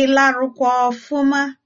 Ị larụkwa ọfụma?